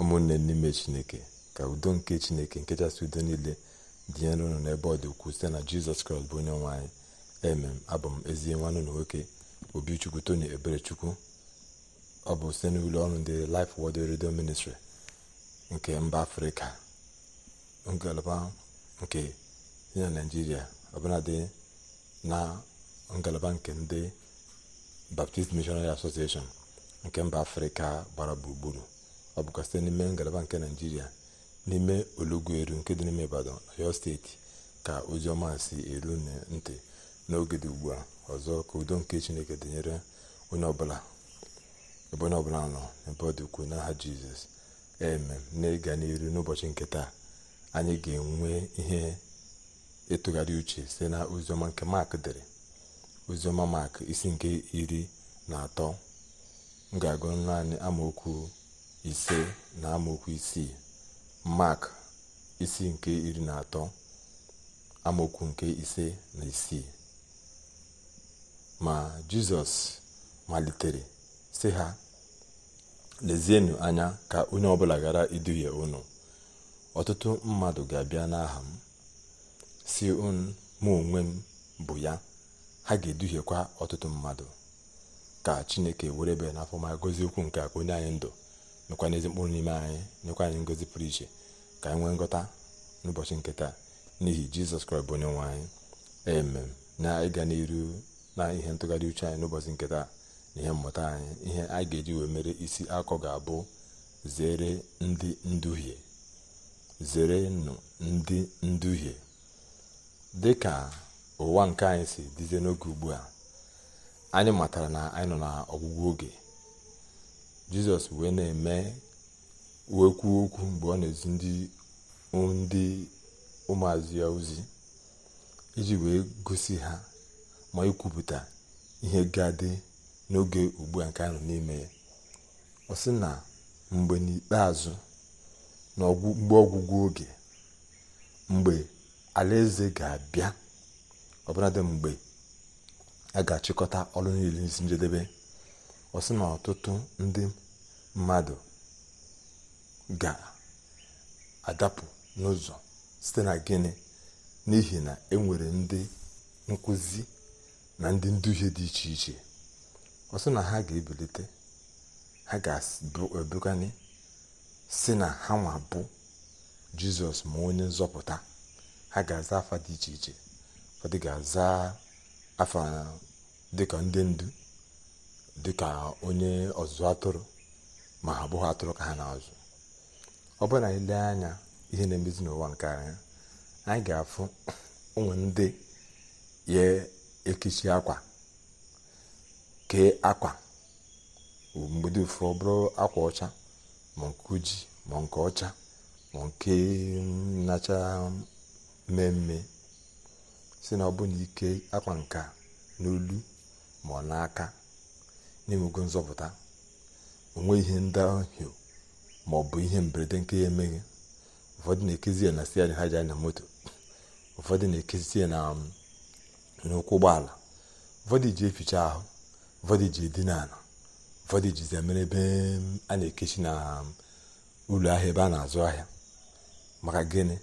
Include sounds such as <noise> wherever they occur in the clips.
ụmụnne n'ime chineke ka udo nke chineke nkechasị udo niile dịnyere unu n'ebe ọ dị ukwuu site na jizọs kraịst bụ onye nwe anyị emem abụ m ezi nwanne na nwoke obichukwu tony eberechukwu ọ bụ site n'ụlọ ọrụ ndị Life Word redio Ministry nke mba afrịka ngalaba nke dị na naijiria ọbụladị na ngalaba nke ndị Baptist Missionary Association nke mba afrịka gbara gburugburu ọ bụkwa site n'ime ngalaba nke naijiria n'ime olugwu nke dị n'ime ibadan oyo steeti ka oziọma si eru ntị n'oge dị ugbu a ọzọ ka udo nke chineke dịnyere onye ọbụla ebe onye ọbụla nọ n'ebe ọ dị ukwuu n'aha jizọs eme na-ịga n'iru n'ụbọchị nke taa anyị ga-enwe ihe ịtụgharị uche site na oziọma nke mak dere oziọma mak isi nke iri na atọ m ga-agụ naanị amaokwu ise na amaokwu isii mak isi nke iri na atọ amaokwu nke ise na isii ma jizọs malitere si ha lezienụ anya ka onye ọbụla ghara iduhie unu ọtụtụ mmadụ ga-abịa n'aha m si mụ onwe m bụ ya ha ga-eduhiekwa ọtụtụ mmadụ ka chineke were ebe n'afọ ma gozie okwu nke onye anyị ndụ mekwana ezi mkpụrụ n'ime anyị nyekwa anyị ngozi pụrụ iche ka anyị nwee ngọta n'ụbọchị nke taa n'ihi jizọs kraịst bụ onye nwe anyị emem na ịga n'iru na ihe ntụgharị uche anyị n'ụbọchị nke taa na ihe mmụta anyị ihe anyị ga-eji wee mere isi akọ ga-abụ zere ndị nduhie zerenụ ndị nduhie dị ka ụwa nke anyị si dịzie n'oge ugbu a anyị matara na anyị nọ ọgwụgwụ oge jizọs wee na-eme wekwu okwu mgbe ọ na-ezi ndị ụmụazụ ya ozi iji wee gosi ha ma ikwupụta ihe ga dị n'oge ugbu a nke anọ n'ime ya ọ sị na mgbe n'ikpeazụ na mgbe ọgwụgwụ oge mgbe alaeze ga-abịa dị mgbe a ga-achịkọta ọrụ niile njedebe ọ na ọtụtụ ndị mmadụ ga-adapụ n'ụzọ site na gịnị n'ihi na enwere ndị nkụzi na ndị nduhie dị iche iche ọ na ha ga-ebilite ha ga-ebugani si na ha nwa bụ jizọs ma onye nzọpụta ha ga-aza afa dị iche iche ụfọdụ ga-aza afa dịka ndị ndu dị ka onye ọzụzụ atụrụ ma ha bụghị atụrụ ka ha na-azụ ọ bụrụ na anyị lee anya ihe na-emezi n'ụwa nke anya anyị ga-afụ ụmụ <clears throat> ndị ya ekichi akwa kee akwa mgbedi ụfụ ọ bụrụ akwa ọcha ma nke ma nke ọcha ma nke nacha mmemme si na ọ bụ na ike akwa nka n'olu ma ọ n'aka na-enwego nzọpụta onwe ihe ndahio ma ọ bụ ihe mberede nke ya emeghị ụfọdụ na-ekezi ya na siarị ha ji anya moto ụfọdụ na-ekezi ya na um, n'ụkwụ ụgbọala ụfọdụ ji eficha ahụ ụfọdụ ji edina ala ụfọdụ jizi mere ebe um, a na-ekechi na um, ụlọ ahịa ebe a na-azụ ahịa maka gịnị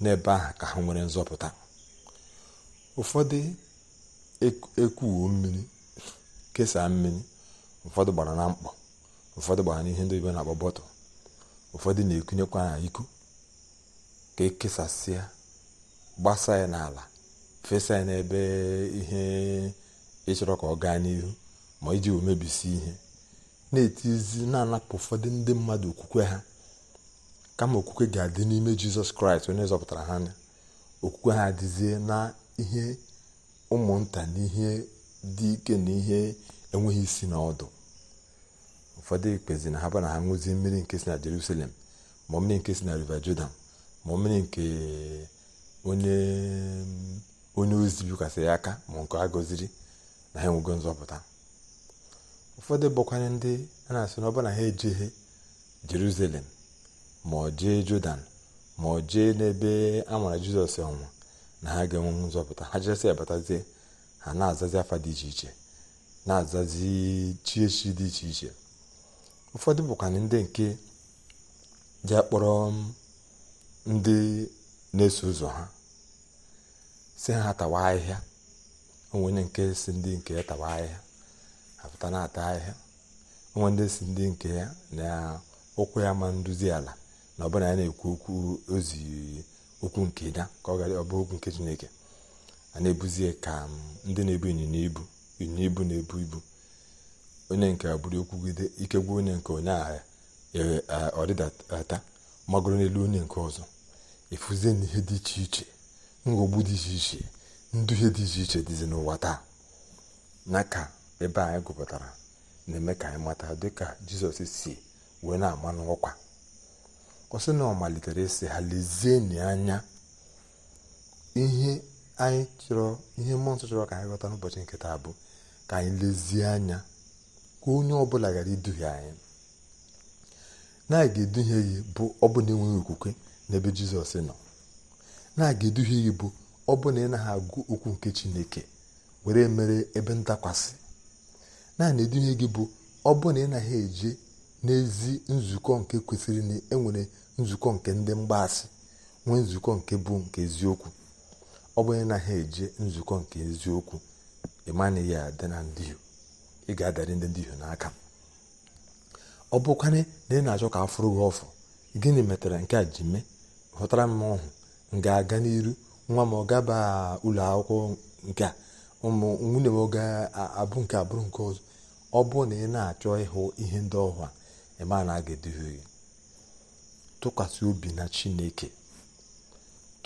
n'ebe ahụ ka ha nwere nzọpụta ụfọdụ ekwuwo e-, e-, mmiri kesaa mmiri ụfọdụ gbara na mkpọ ụfọdụ gbara n'ihe ndị oyibo na-akpọ bọtụl ụfọdụ na-ekunyekwa na iku ka ekesasịa gbasa ya n'ala fesa ya n'ebe ihe ịchọrọ ka ọ gaa n'ihu ma iji omebisi ihe na-etizi na-anapụ ụfọdụ ndị mmadụ okwukwe ha kama okwukwe ga-adị n'ime jizọs kraịst onye zọpụtara ha anya okwukwe ha adịzie na ihe ụmụnta na ihe dị ike na ihe enweghị isi na ọdụ ụfọdụ ekpezi na ha bụ na ha ṅụzie mmiri nke si na jerusalem ma mmiri nke si na river jordan ma mmiri nke onye onye ozi bikwasịrị aka ma nke a gọziri na ha enwego nzọpụta ụfọdụ bụkwanye ndị a na-asị na na ha ejeghe jerusalem ma ọ jee jordan ma ọ jee n'ebe a mara jizọs ọnwụ na ha ga-enwe nzọpụta ha jesị abatazie ha na-azazi afa dị iche iche na-azazi chi echi dị iche iche ụfọdụ bụkwana ndị nke ji akpọrọ um, ndị na-eso ụzọ ha si ha tawa ahịhịa onwenye nke si ndị nke ya tawa ahịhịa apụta na-ata ahịhịa onwe ndị si ndị nke ya na ụkwụ ya ma nduzi ala na ọbụla ya na-ekwu okwu ozi okwu nke ya ka ọ gara ọbụ okwu nke chineke a na-ebuzie ka um, ndị na-ebu ịnyịnya ibu ịnyịnya ibu na-ebu ibu onye nke a buru okwugide ike onye nke onye agha e, e, ọdịdata magoro n'elu onye nke ọzọ efuzie na ihe dị iche iche nghọgbu dị iche iche nduhie dị iche iche dịzi n'ụwa taa na ka ebe anyị gụpụtara na-eme ka anyị mata dịka jizọs si wee na-ama n'ọkwa ọ sị na ọ malitere ịsị ha lezienụ anya ihe anyị chọrọ ihe mmụọ nsọ chọrọ ka anyị ghọta n'ụbọchị nke taa bụ ka anyị lezie anya ka onye ọbụla gara iduhie anyị na ga-eduhie gị bụ ọbụna enweghị okwukwe n'ebe jizọs nọ na ga-eduhie gị bụ ọbụna ị naghị agụ okwu nke chineke were mere ebe ntakwasị naanị eduhie gị bụ ọbụna ị naghị eje n'ezi nzukọ nke kwesịrị na enwere nzukọ nke ndị mgbaasị nwee nzukọ nke bụ nke eziokwu ọ bụrụ na ha eje nzukọ nke eziokwu ịmanaghị adị na ndị ị ga-adari ndị ndị n'aka ọ bụkwanye na ị na-achọ ka afụrụ gị ọfụ gịnị metara nke a ji mee hụtara m ọhụ ga-aga n'iru nwa m ọ gaba ụlọ akwụkwọ nke a ụmụ nwunye m ga-abụ nke abụrụ nke ọzọ ọ bụ na ị na-achọ ịhụ ihe ndị ọhụ a ịma na a ga-eduhie gị tụkwasị obi na chineke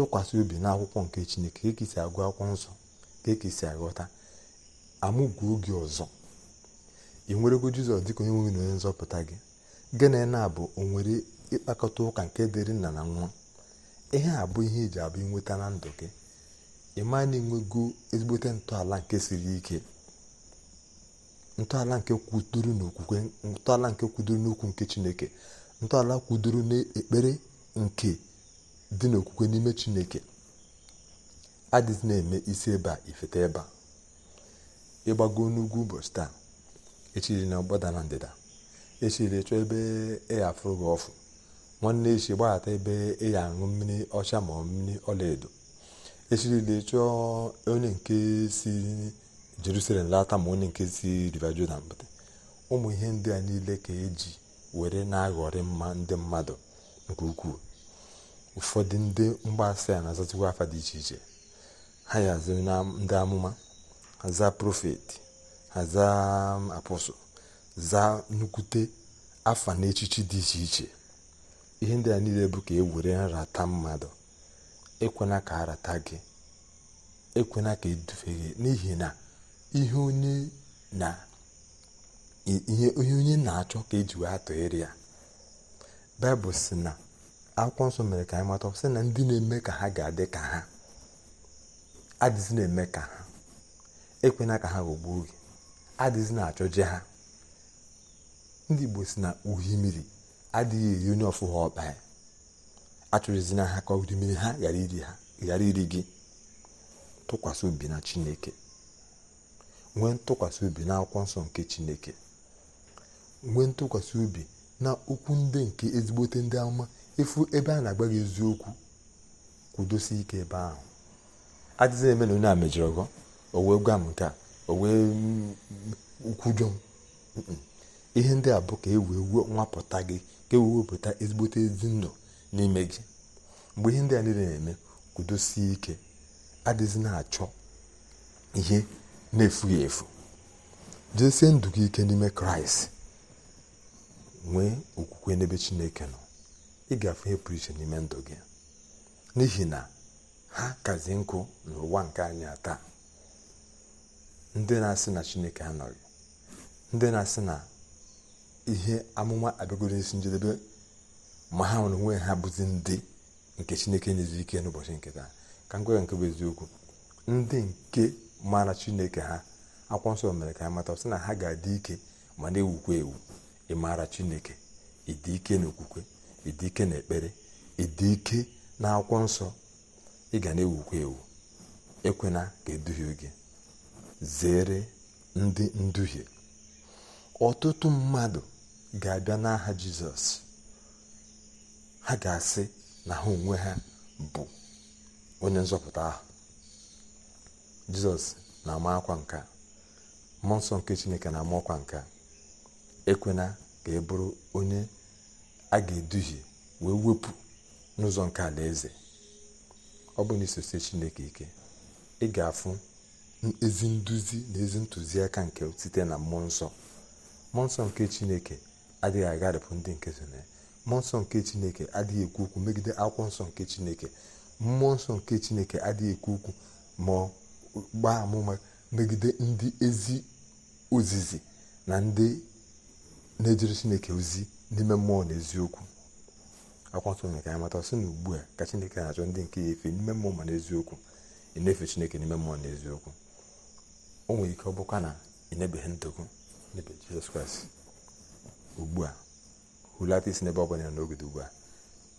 tụkwasị obi n'akwụkwọ nke chineke ka e agụ akwụkwọ nsọ ka ekesi aghọta amụgwu oge ọzọ ị nwerego jizọs dịka onye nweghị onye nzọpụta gị gịnị na bụ onwere ịkpakọta ụka nke dịrị nna na nwa ihe a bụ ihe eji abụ inweta na ndụ gị ịma na enwego ezigbote ntọala nke siri ike ntọala nke kwudoro n'okwukwe ntọala nke kwudoro n'okwu nke chineke ntọala kwudoro n'ekpere nke dị n'okwukwe n'ime chineke adịzi na-eme isi ịba ifeta ịba ịgbago n'ugwu ụbọchị taa echiri na ọgbada na ndịda echiri chọọ ebe ị gị ọfụ nwanne echi gbaghata ebe ị ya aṅụ mmiri ọcha ma ọ mmiri ọla edo echirila chọọ onye nke si jerusalem lata ma onye nke si river jordan pụta ụmụ ihe ndị a niile ka eji were na-aghọrị mma ndị mmadụ nke ukwuu ụfọdụ ndị mgbaasị a na-azatụkwa afa dị iche iche ha ya na ndị amụma aza profeti, aza apọsụl zaa nnukwute afa na echichi dị iche iche ihe ndị a niile bụ ka e nrata mmadụ ekwena ka arata gị ekwena ka edufe gị n'ihi na ihe onye na achọ ka e wee atụgharị ya baịbụl si na akwụkwọ nsọ mere ka anyị mata sị na ndị na-eme ka ha ga-adị ka ha adịzi na-eme ka ha ekwena ka ha ghọgbuo gị adịzi na achọ je ha ndị igbo si na uhi mmiri adịghị eri onye ọfụha ọkpa ya achọrọzi na ha ka uhi mmiri ha ghara iri gị tụkwasị obi na chineke nwee ntụkwasị obi na akwụkwọ nsọ nke chineke nwee ntụkwasị obi na okwu ndị nke ezigbote ndị ama efu ebe a na-agba gị eziokwu kwudosi ike ebe ahụ adịghị eme na onye a mejọrọ gọ o wee gwa m nke a o wee mm, kwujọ m ihe ndị a bụ ka e wee nwapụta gị ka e wee wepụta ezigbote ezi ndụ n'ime gị mgbe ihe ndị a niile na-eme kwudosi ike adịghị na-achọ ihe na-efughị efu jesie ndụ gị ike n'ime kraịst nwee okwukwe n'ebe chineke nọ ị ga-afụ ihe pụrụ iche n'ime ndụ gị n'ihi na ha kazi nkụ n'ụwa nke anyị taa ndị na-asị na chineke anọghị ndị na-asị na ihe amụma abịagoro isi njedebe ma ha nwere onwe ha bụzi ndị nke chineke nyezi ike n'ụbọchị nke taa ka m gwara nke bụ eziokwu ndị nke mara chineke ha akwụkwọ nsọ mere ka ha mata sị na ha ga-adị ike ma na-ewukwa ewu ịmara chineke ịdị ike n'okwukwe ịdị ike na ekpere ịdị ike na akwụkwọ nsọ ị ga na-ewukwa ewu ekwena ka eduhie gị zere ndị nduhie ọtụtụ mmadụ ga-abịa n'aha jizọs ha ga-asị na ha onwe ha bụ onye nzọpụta ahụ jizọs na-ama akwa nka mmụọ nsọ nke chineke na-ama ọkwa nkà ekwena ka ị bụrụ onye a ga-eduhie wee wepụ n'ụzọ nke alaeze ọ bụ na chineke ike ị ga-afụ ezi nduzi na ezi ntụziaka nke site na mmụọ nsọ mmụọ nsọ nke chineke adịghị agharịpụ ndị nke so na mmụọ nsọ nke chineke adịghị ekwu okwu megide akwụkwọ nsọ nke chineke mmụọ nsọ nke chineke adịghị ekwu okwu ma gbaa amụma megide ndị ezi ozizi na ndị na-ejere chineke ozi n'ime mmụọ na eziokwu akwa nsọ mere ka anyị mata sị na ugbu a ka chineke na-achọ ndị nke ya efe n'ime mmụọ ma n'eziokwu ị na-efe chineke n'ime mmụọ na eziokwu o nwere ike ọ bụkwa na ị na-ebeghị ndụ gị n'ebe jizọs kraịst ugbu a hulata isi n'ebe ọ bụla ya n'oge ugbu a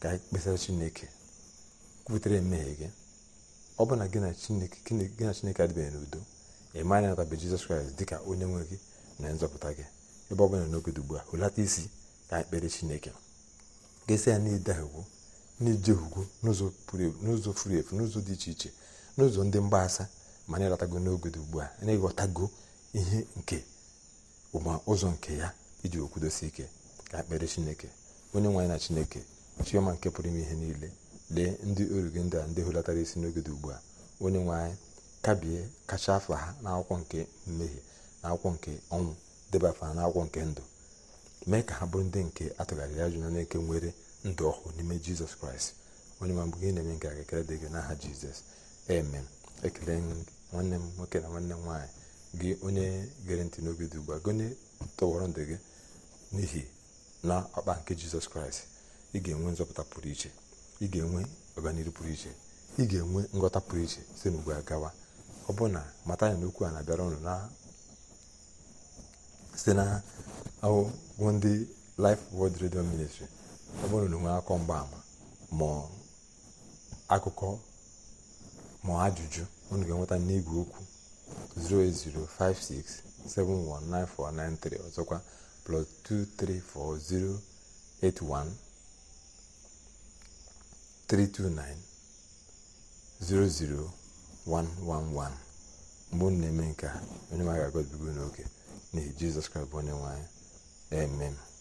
ka anyị kpesara chineke kwutere mmehie gị ọ bụ na gị na chineke adịbeghị n'udo ị ma na natabe jizọs kraịst dị ka onye nwe gị na nzọpụta gị ebe ọ bụla n'oge dị ugbu a hulata isi ya ekpere chineke ga ya ya n'ide egwu n'ije ugwu n'ụzọ furu efu n'ụzọ dị iche iche n'ụzọ ndị mgbasa ma na ịlọtago n'oge dị ugbu a na-ịghọtago ihe nke ụma ụzọ nke ya iji okwudosi ike ka ekpere chineke onye nwaanyị na chineke chioma nke pụrụ ime ihe niile lee ndị oru ndị a ndị hụlatara isi n'oge dị ugbu a onye nwaanyị kabie kacha afa ha n'akwụkwọ nke mmehie na akwụkwọ nke ọnwụ deba afa ha n'akwụkwọ nke ndụ mee ka ha bụrụ ndị nke atụgharịrị ajụ na eke nwere ndụ ọhụụ n'ime jizọs kraịst onye ma gị na-eme nke a ga-ekele dị gị n'aha jizọs eme ekele nwanne m nwoke na nwanne m nwaanyị gị onye gere ntị n'obi dị ugbu a gone tọwọrọ ndụ gị n'ihi na ọkpa nke jizọs kraịst ị ga-enwe nzọpụta pụrụ iche ị ga-enwe ọganihu pụrụ iche ị ga-enwe nghọta pụrụ iche site n'ugbu a gawa ọ bụ na mata ya n'okwu a na-abịara ụnụ site na bụ ndị Life world Radio Ministry ọ bụrụ na nwee akọ mgbaama ma akụkọ ma ajụjụ unu ga-enweta n'igwe okwu 08056719493 ọzọkwa plus 2340813290011 mgbe unu na-eme nke a onye maga agọbigo n'oke n'ihi Jizọs Kraịst bụ onye nwe Amen.